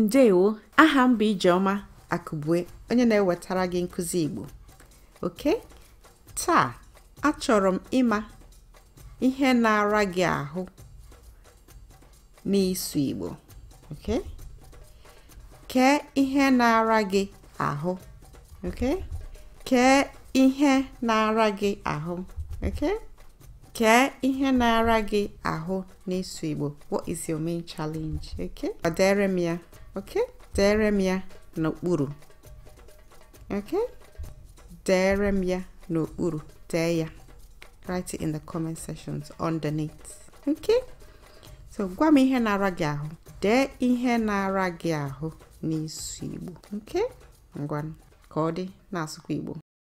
ndewo aha mba bụ ijeọma akụbue onye na-ewetara gị nkụzi igbo oke taa achọrọ m ịma ihe na-ara gị ahụ n'ịsụ igbo oke kee ihe na-ara gị ahụ oke kee ihe na-ara gị ahụ oke kee ihe na-ara gị ahụ n'ịsụ igbo what is your main challenge oke ọ m ya okay dere m ya n'okpuru okay dere m ya n'okpuru Dere, ya write it in the comment sections underneath okay so gwa m ihe na-ara gị ahụ dee ihe na-ara gị ahụ igbo okay ngwan ka ọ dị igbo